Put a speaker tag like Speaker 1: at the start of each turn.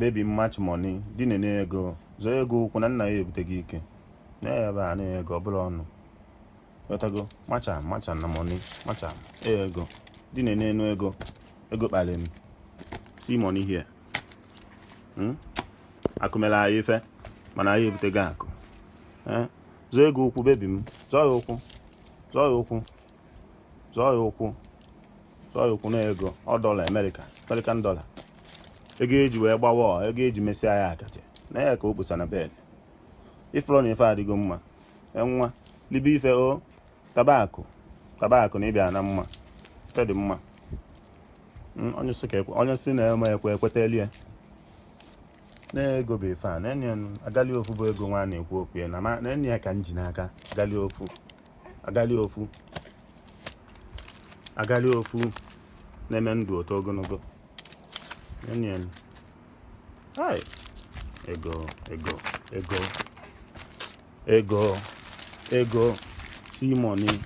Speaker 1: baby match money dị na-enye ego zụọ ego ụkwụ na nna ya ebute gị ike na-ebe a na ego ọ bụla ọnụ wetago macha macha na money macha ego dị na-enye ego ego kpalị m see money here hmm? akụmela anyị ife mana anyị gị akụ eh? zụọ ego ụkwụ bebi m zụọ ya ụkwụ zụọ ya ụkwụ zụọ ya ụkwụ zụọ ya ụkwụ na ego ọ dọla America American dọla. ego eji wee gbawa ego eji mesịa ya akacha na ya ka o kposa na bed ifụrọ na ife adịgo mma enwa libe ife o tabakụ tabakụ na ịbịa na mma ife dị mma mm, onye si na-eme ekwe ekwetali ya na-ego bụ ife a na-enyo agali ofu bụ ego nwa na-ekwu okwu ya na enyi ya ka m ji n'aka agali ofu agali ofu agali ofu na-eme ndụ otu ogologo Onion. Hi. Ego, ego, ego, ego, ego. See money.